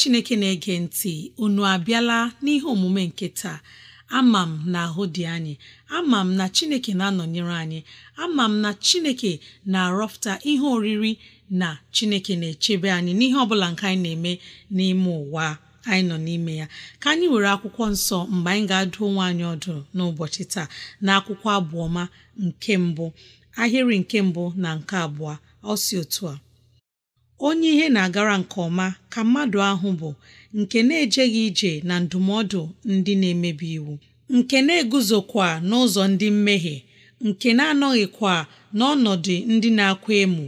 chineke na-ege ntị unu abịala n'ihe omume nke taa ama m na ahụ dị anyị ama m na chineke na-anọnyere anyị ama m na chineke na-arọpụta ihe oriri na chineke na-echebe anyị n'ihe ọbụla nke anyị na-eme n'ime ụwa anyị nọ n'ime ya ka anyị were akwụkwọ nsọ mgbe anyị ga-adụ onwe anyị ọdụ n'ụbọchị taa na akwụkwọ abụọma nke mbụ ahịrị nke mbụ na nke abụọ ọ si otu a onye ihe na-agara nke ọma ka mmadụ ahụ bụ nke na-ejeghị ije na ndụmọdụ ndị na-emebi iwu nke na-eguzokwa n'ụzọ ndị mmehie nke na-anọghịkwa n'ọnọdụ ndị na-akwa emu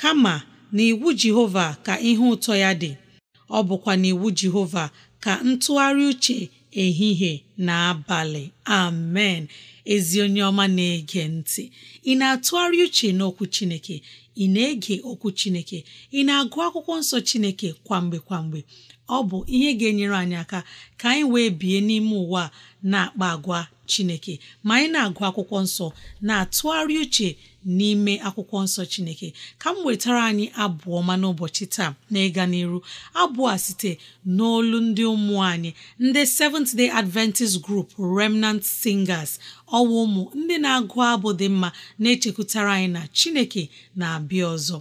kama na iwu Jehova ka ihe ụtọ ya dị ọ bụkwa n'iwu Jehova ka ntụgharị uche ehihie na abalị amen ezi onye ọma na-ege ntị ị na-atụgharị uche n'okwu Chineke ị na-ege okwu Chineke ị na-agụ akwụkwọ nsọ Chineke kwamgbe kwamgbe ọ bụ ihe ga-enyere anyị aka ka anyị wee bie n'ime ụwa na-akpa agwa chineke ma anyị na-agụ akwụkwọ nsọ na-atụgharị uche n'ime akwụkwọ nsọ chineke ka m wetara anyị abụọ ma n'ụbọchị taa na ịga n'iru abụọ a site n'olu ndị ụmụ anyị ndị Seventh Day Adventist Group Remnant Singers ọwa ụmụ ndị na-agụ abụ dị mma na-echekwutara anyị na chineke na-abịa ọzọ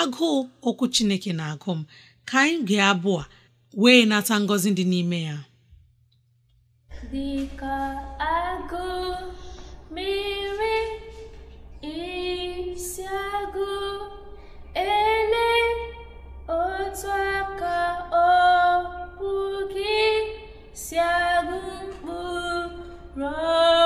agụụ okwu chineke na-agụ m ka anyị gaa abụọ wee na-ata ngọzi dị n'ime ya dịka agụ mmiri isi agụ ele otu aka ọkpụ gị si agụ mkpụrụ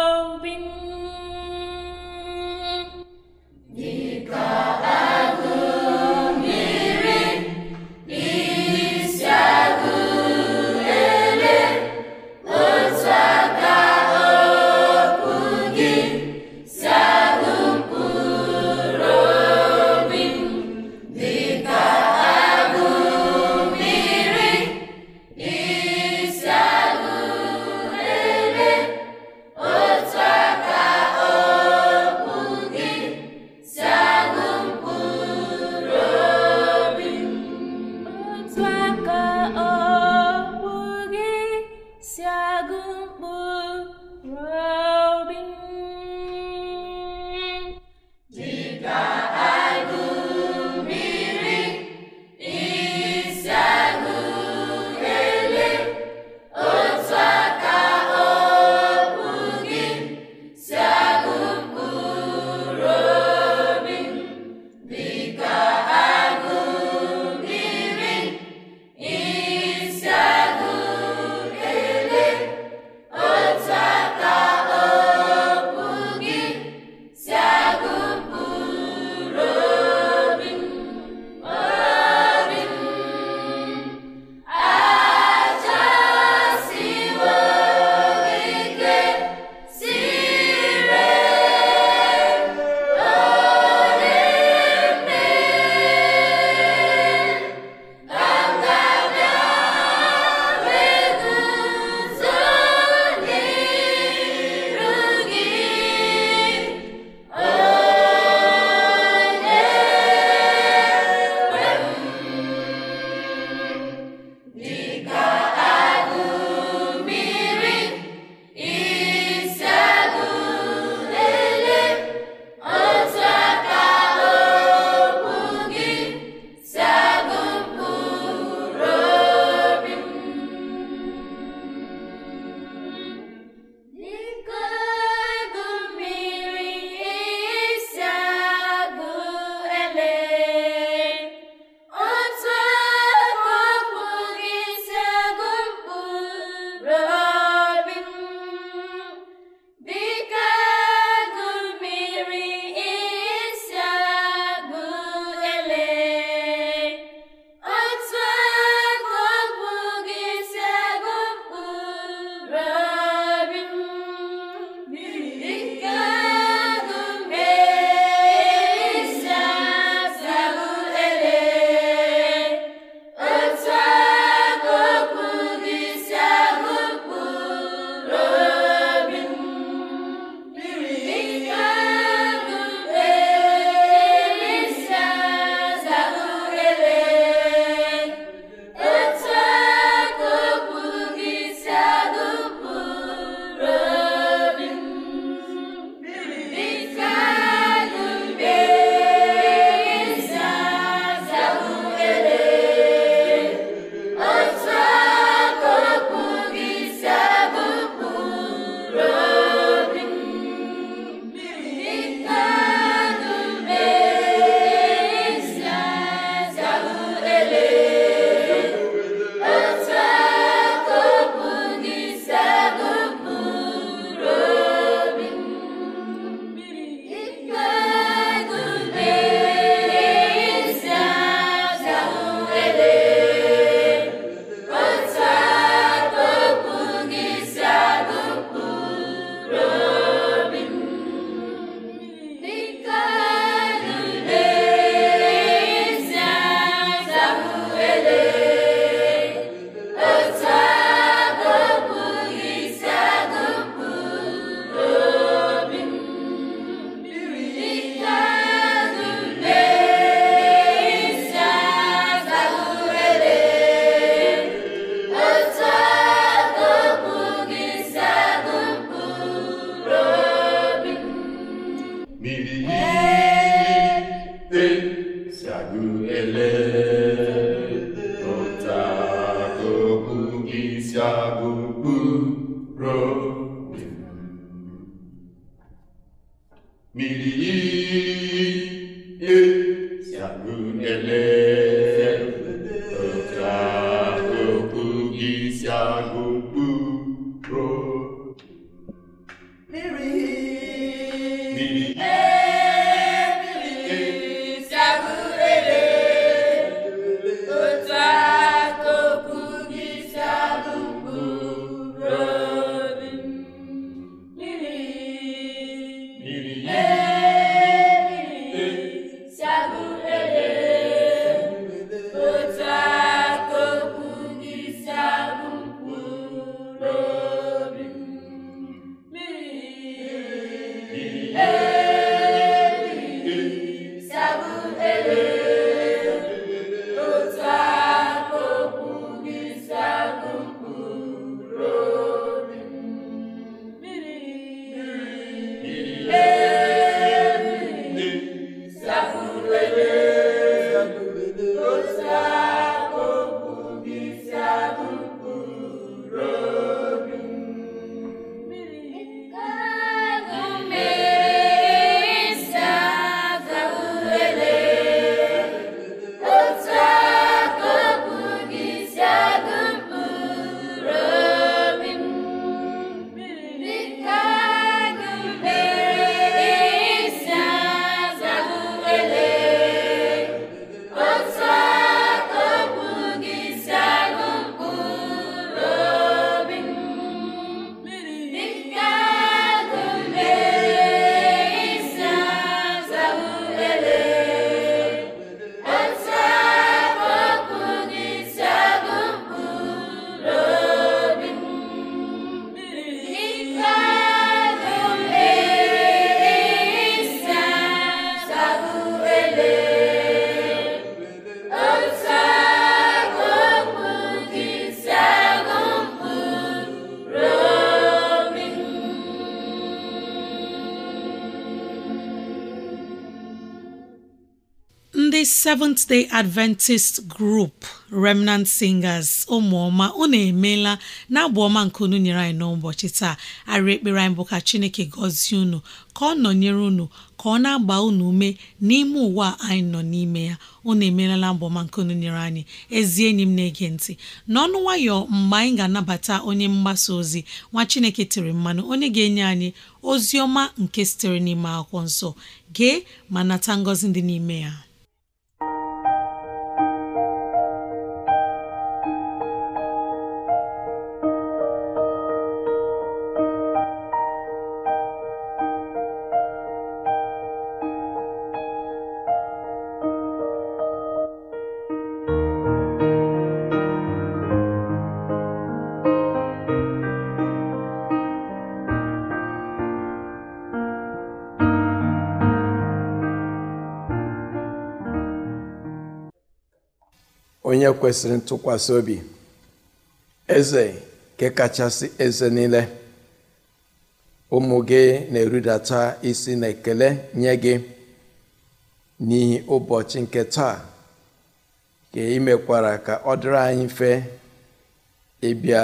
mmiri Seventh Day Adventist Group Remnant Singers ụmụọma unu emeela na-abụ ọma nke unu nyere anyị n'ụbọchị taa arị ekpere anyị bụ ka Chineke gọzie unu ka ọ nọnyere unu ka ọ na-agba unu ume n'ime ụwa anyị nọ n'ime ya unu emeela na ọma nke unu nyere anyị ezi enyi m na-ege ntị n'ọnụ nwayọ mgbe anyị ga-anabata onye mgbasa ozi nwa Chineke tiri mmanụ onye ga-enye anyị ozi ọma nke sitere n'ime akwụkwọ nsọ gee ma nata ngọzi dị n'ime ya onye kwesịrị ntụkwasị obi eze nke kachasị eze niile ụmụ gị na-erudata isi na ekele nye gị n'ihi ụbọchị nke taa ka imekwara ka ọ dịrị anyị mfe ịbịa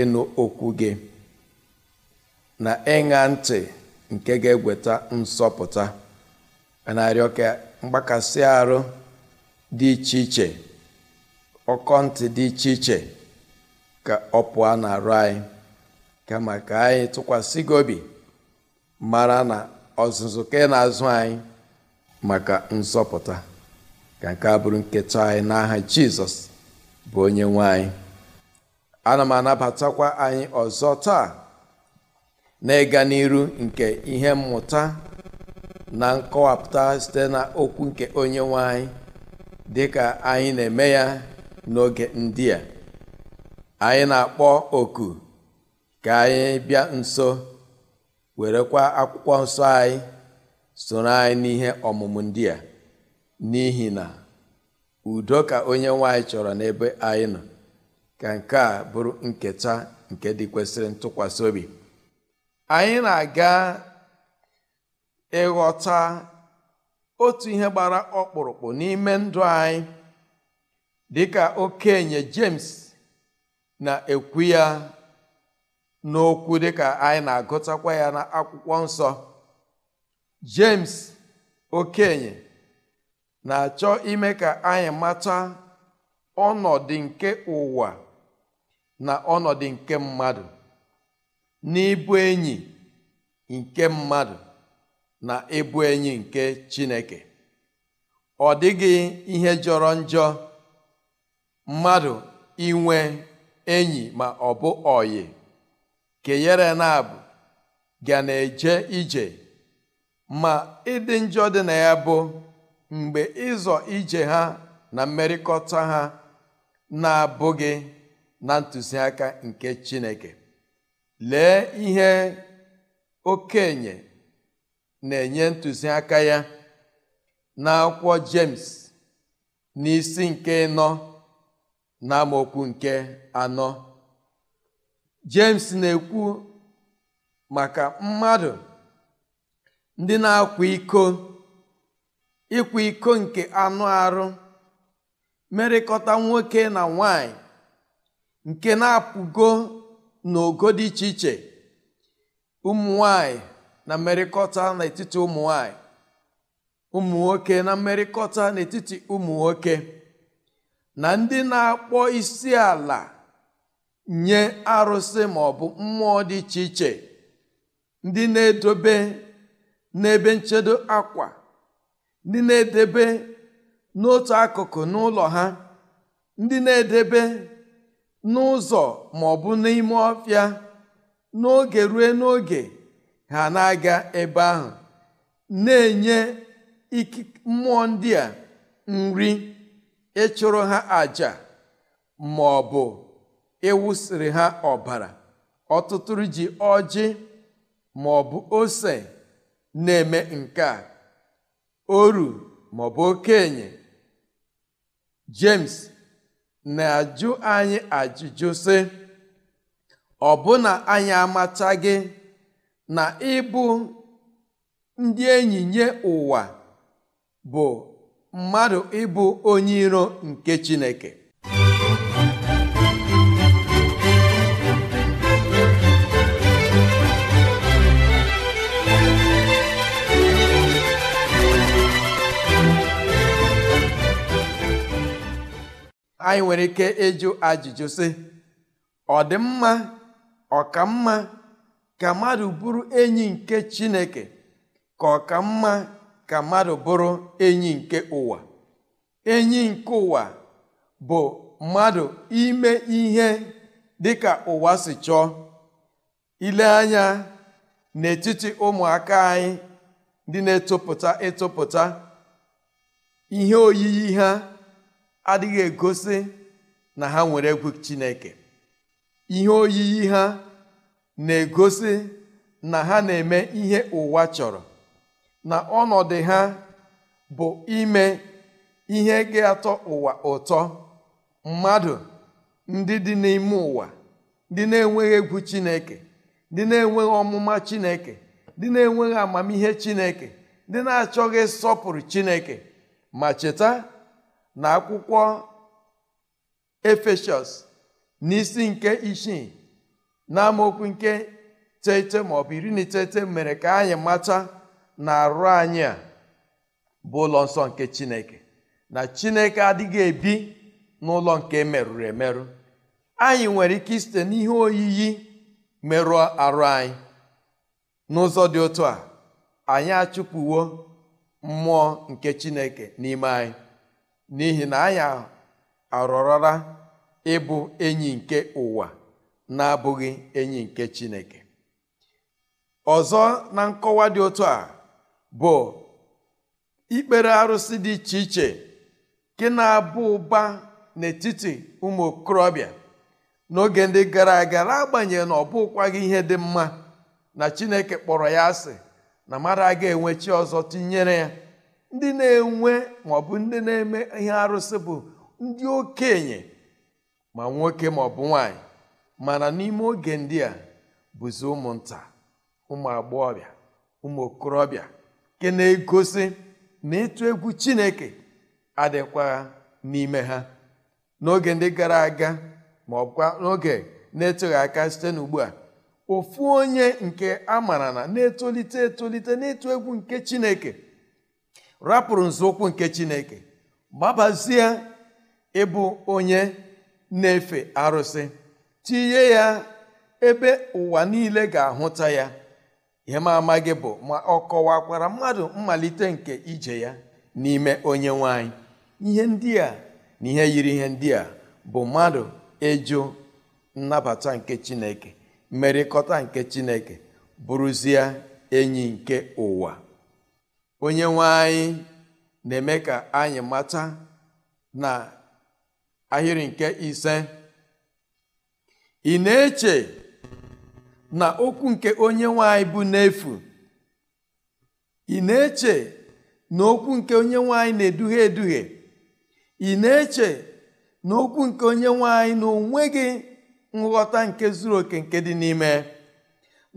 ịnụ okwu gị na ịṅa ntị nke ga egweta nsọpụta a na-arịọ ka mgbakasị arụ dị iche iche ọkọ ntị dị iche iche ka ọ pụọ na-arụ anyị kama ka anyị tụkwasị gị obi mara na ọzụzụ ka na-azụ anyị maka nzọpụta ka nke a bụrụ nketa anyị n'aha jizọs bụ onye nwanyị anyị ana m anabatakwa anyị ọzọ taa na ịga n'iru nke ihe mmụta na nkọwapụta site na okwu nke onye nwe dịka anyị na-eme ya n'oge ndị a anyị na-akpọ oku ka anyị bịa nso werekwa akwụkwọ nsọ anyị soro anyị n'ihe ọmụmụ ndị a n'ihi na udo ka onye nwanyị chọrọ n'ebe anyị nọ ka nke a bụrụ nketa nke dị kwesịrị ntụkwasị obi anyị na-aga ịghọta otu ihe gbara ọkpụrụkpụ n'ime ndụ anyị dịka okenye James na-ekwu ya n'okwu dịka anyị na-agụtakwa ya n'akwụkwọ akwụkwọ nsọ James okenye na-achọ ime ka anyị mata ọnọdụ nke ụwa na ọnọdụ nke mmadụ n'ịbụ enyi nke mmadụ na ịbụ enyi nke Chineke ọ dịghị ihe jọrọ njọ mmadụ inwe enyi ma ọ bụ ọyị kenyere na-abụ ga na-eje ije ma ịdị njọ dị na ya bụ mgbe ịzọ ije ha na mmerịkọta ha na-abụghị na ntụziaka nke Chineke lee ihe okenye na-enye ntụziaka ya na n'akwụkwọ jems n'isi nke ịnọ n'amaokwu nke anọ jemes na-ekwu maka mmadụ ndị na-akwa iko ịkwa iko nke anụ arụ merịkọta nwoke na nwanyị nke na-apụgo n'ogo dị iche iche ụmụ nwanyị na mmerịkọta n'etiti ụmụ nwanyị ụmụ nwoke na mmerịkọta n'etiti ụmụ nwoke na ndị na-akpọ isi ala nye arụsị maọbụ mmụọ dị iche iche ndị na-edobe n'ebe nchedo akwa ndị na-edebe n'otu akụkụ n'ụlọ ha ndị na-edebe n'ụzọ maọbụ n'ime ọfịa n'oge ruo n'oge ha na-aga ebe ahụ na-enye mmụọ ndị nri ịchụrụ ha aja ma ọ bụ ịwụsịrị ha ọbara ọtụtụ ji ọjị ma ọ bụ ose na-eme nke a oru ma ọ bụ okenye James na-ajụ anyị ajụjụ sị ọbụna anyị amachaghị na ịbụ ndị enyi nye ụwa bụ mmadụ ịbụ onye iro nke Chineke anyị nwere ike ịjụ ajụjụ sị ọ dị mma ka mmadụ bụrụ enyi nke Chineke ka ọ mma ka mmadụ bụrụ enyi nke ụwa enyi nke ụwa bụ mmadụ ime ihe dịka ụwa si chọọ ile anya n'etiti ụmụaka anyị dị na-etopụta etopụta ihe oyiyi ha adịghị egosi na ha nwere egwu Chineke ihe oyiyi ha na-egosi na ha na-eme ihe ụwa chọrọ na ọnọdụ ha bụ ime ihe ga-atọ ụwa ụtọ mmadụ ndị dị n'ime ụwa ndị na-enweghị egwu chineke dị na-enweghị ọmụma chineke dị na-enweghị amamihe chineke ndị na-achọghị sọpụrụ chineke ma cheta na akwụkwọ efeshọs n'isi nke isii na amaokwu nke teghete maọbụ iri na iteghete mere ka anyị mata na arụ anyị a bụ ụlọ nsọ nke chineke na chineke adịghị ebi n'ụlọ nke merụrụ emerụ anyị nwere ike isite n'ihe oyiyi merụọ arụ anyị n'ụzọ dị otu a anyị achụpụwo mmụọ nke chineke n'ime anyị n'ihi na anyị arọrọla ịbụ enyi nke ụwa na-abụghị enyi nke chineke ọzọ na nkọwa dị otu a bụ ikpere arụsị dị iche iche nke na abụ ụba n'etiti ụmụ okorobịa n'oge ndị gara aga agbanyeghị na ọ bụkwaghị ihe dị mma na chineke kpọrọ ya asị na mmadụ aga enwe chi ọzọ tinyere ya ndị na-enwe maọbụ ndị na-eme ihe arụsị bụ ndị okenye ma nwoke maọbụ nwanyị mana n'ime oge ndị a bụzi ụmụnta ụmụ agbọghọbịa ụmụ okorobịa nke na-egosi na ịtụ egwu chineke adịkwa n'ime ha n'oge ndị gara aga ma ọkwa n'oge na-etughị aka site n'ugbu a ofu onye nke a na na-etolite etolite n'ịtụ egwu nke chineke rapụrụ nzọụkwụ nke chineke gbabazie ịbụ onye na-efe arụsị tinye ya ebe ụwa niile ga-ahụta ya ihe m ama gị bụ ma ọ kọwakwara mmadụ mmalite nke ije ya n'ime onye nwanyị ihe ndị a na ihe yiri ihe ndị a bụ mmadụ ịjụ nnabata nke chineke mmerịkọta nke chineke bụrụzie enyi nke ụwa onye nwanyị na-eme ka anyị mata na ahịrị nke ise ị na-eche na okwu nke onye nwanyị bụ n'efu ị na-eche na okwu nke onye nwanyị na-eduhie eduhie ị na-eche na okwu nke onye nwanyị na onweghị nghọta nke zuru oke nke dị n'ime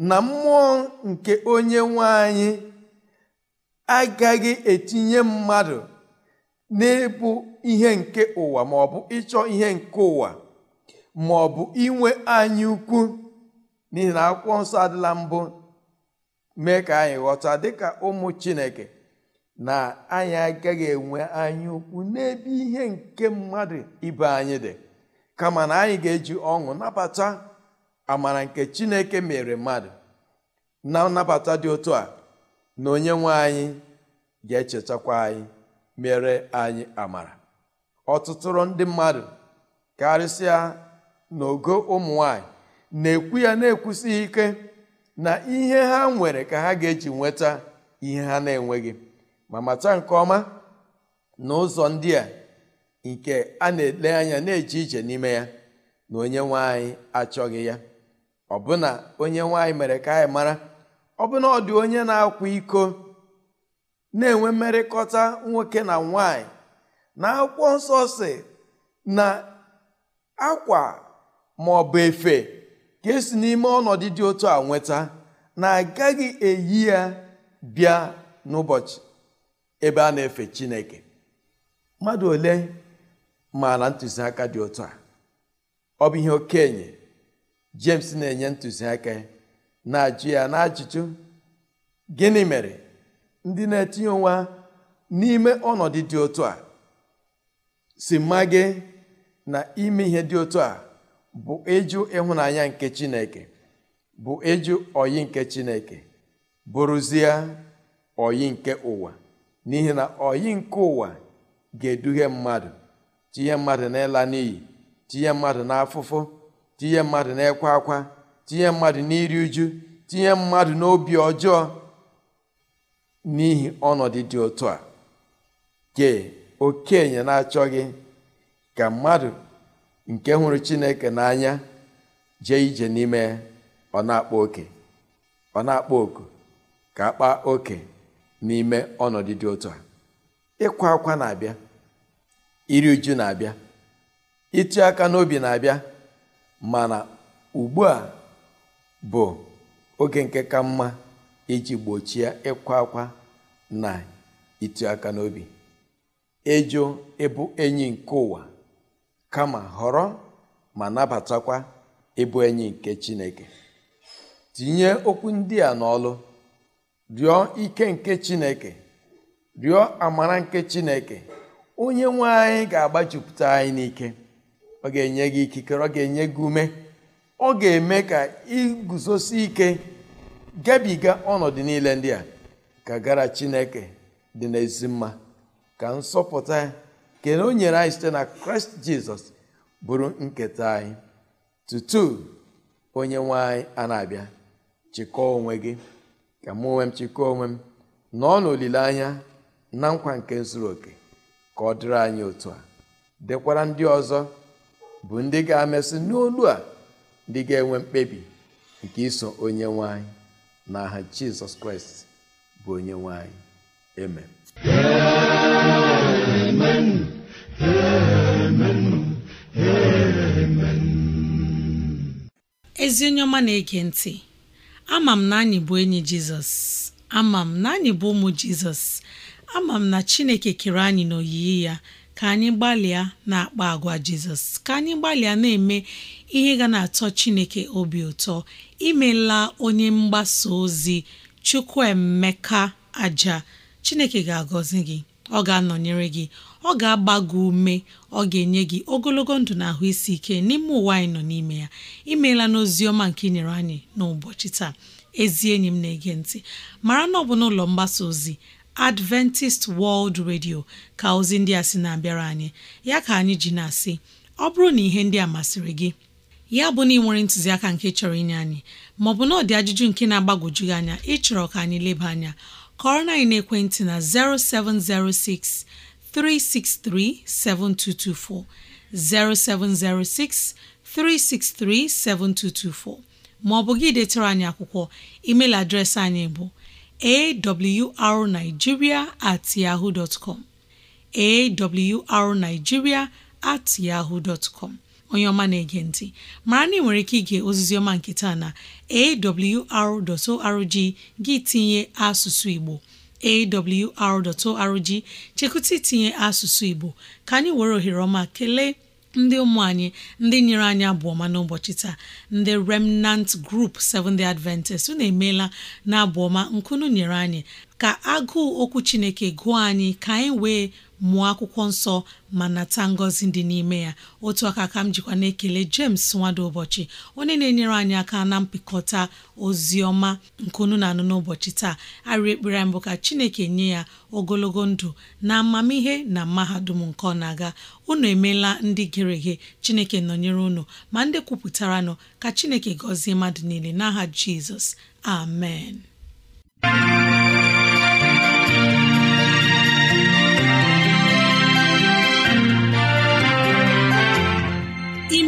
na mmụọ nke onye nwanyị agaghị etinye mmadụ na-ebu ihe nke ụwa bụ ịchọ ihe nke ụwa maọbụ inwe anyị ukwu n'ihi na akwụkwọ nsọ adịla mbụ mee ka anyị ghọta dịka ụmụ chineke na anyị agaghị enwe anya ukwu n'ebe ihe nke mmadụ ibe anyị dị kama na anyị ga-eji ọṅụ nabata amara nke chineke mere mmadụ na nnabata dị otu a na onye nwe anyị ga-echetakwa anyị mere anyị amara ọtụtụrụ ndị mmadụ karịsịa n'ogo ụmụ nwanyị na-ekwu ya na-ekwusighị ike na ihe ha nwere ka ha ga-eji nweta ihe ha na-enweghị ma mata nke ọma na ụzọ ndị a nke a na-ele anya na-eje ije n'ime ya na onye nwanyị achọghị ya ọbụna onye nwanyị mere ka anyị mara ọbụna ọ dị onye na-akwa iko na-enwe mmerịkọta nwoke na nwanyị na akwụkwọ nsọ si na akwa ma efe ka esi n'ime ọnọdụ dị otu a nweta na agaghị eyi ya bịa n'ụbọchị ebe a na-efe chineke mmadụ ole maara ntụziaka dị otu a ọ bụ ihe okenye james na-enye ntụziaka na-ajụ ya n'ajụjụ gịnị mere ndị na-etinye onwe n'ime ọnọdụ dị otu a si mma gị na ime ihe dị otu a bụ eju ịhụnanya nke chineke bụ eju oyi nke chineke bụrụzie oyi nke ụwa n'ihi na oyi nke ụwa ga eduhe mmadụ tinye mmadụ n'ịla n'iyi tinye mmadụ n'afụfụ tinye mmadụ n'ekwa akwa tinye mmadụ n'iri uju tinye mmadụ n'obi ọjọọ n'ihi ọnọdụ dị otu a ke okenye na-achọghị ka mmadụ nke hụrụ chineke n'anya jee ije n'ime ọ na-akpa oke ọ na-akpa oku ka kpaa oke n'ime ọnọdụ dị otu a ịkwa akwa na-abịa iri uju na-abịa ịtụ aka n'obi na-abịa mana ugbu a bụ oge nke ka mma iji gbochie ịkwa akwa na ịtụ aka n'obi ịjụ ịbụ enyi nke ụwa kama họrọ ma nabatakwa ịbụ enyi nke Chineke tinye okwu ndị a n'ọlụ rịọ ike nke Chineke rịọ amara nke Chineke onye nwe anyị ga-agbajupụta anyị n'ike ọ ga-enye gị ikikere ọ ga-enye gị ume ọ ga-eme ka iguzosi ike gabiga ọnọdụ niile ndị a ka gara Chineke dị n'ezi mma ka nsọpụta nke na o nyere anyị site na kraịst jizọs bụrụ nketa anyị tutu onye nwe anyị a na-abịa chịkọọ onwe gị ka mụ onwe m chịkọọ onwe m nọọ n'olileanya na nkwa nke zuru oke ka ọ dịrị anyị otu a dekwara ndị ọzọ bụ ndị ga-amesị n'olu a ndị ga-enwe mkpebi nke iso onye nwe anyị na aha jizọs kraịst bụ onye nwe anyị ezi onye ọma na-ege ntị ama m na anyị bụ enyi jizọs ama m na anyị bụ ụmụ jizọs ama m na chineke kere anyị n'oyiyi ya ka anyị gbalịa na-akpa agwa jizọs ka anyị gbalịa na-eme ihe ga na-atọ chineke obi ụtọ imela onye mgbasa ozi chukwuemeka aja chineke ga-agọzi gị ọ ga-anọnyere gị ọ ga-agba gị ume ọ ga-enye gị ogologo ndụ na ahụ isi ike n'ime ụwa anyị nọ n'ime ya imeela n'ozi ọma nke ị nyere anyị n'ụbọchị taa ezi enyi m na-ege ntị mara na ọ bụ n'ụlọ mgbasa ozi Adventist World Radio ka ozi ndị a sị na-abịara anyị ya ka anyị ji na-asị ọ bụrụ na ihe ndị a masịrị gị ya bụ na ị nwere ntụziaka nke chọrọ inye anyị maọbụ na ọdị ajụjụ nke na agbagojugị anya ịchọrọ ka anyị leba anya kọrọ na ekwentị na 0706 363 7224 0706 363 7224 Ma ọ bụ gị detere anyị akwụkwọ email adreesị anyị bụ awrnigeria at yahoo dot com awrnigeria at yahoo dot com onye ọma na-ege ntị mara na ị nwere ike ịga ozizi ọma nke taa na awr.org gị tinye asụsụ Igbo awr.org chekwụta itinye asụsụ Igbo ka anyị were ohere ọma kelee ndị ụmụ anyị ndị nyere anyị abụọma n'ụbọchị taa ndị remnant group Seventh-day Adventist unu emeela na abụọma nkunu nyere anyị ka agụụ okwu Chineke gụọ anyị ka anyị wee mụọ akwụkwọ nsọ ma nata ngọzi dị n'ime ya otu aka ka m jikwa na-ekele James nwada ụbọchị onye na-enyere anyị aka na mpịkọta ozi ọma nke unu na-anụ n'ụbọchị taa arị ekpere mbụ ka Chineke nye ya ogologo ndụ na amamihe na mahadum nke ọ na-aga unu emeela ndị gere ghe Chineke nọnyere unu ma ndị kwupụtaranụ nọ ka Chineke gọzie mmadụ niile n'aha Jizọs amen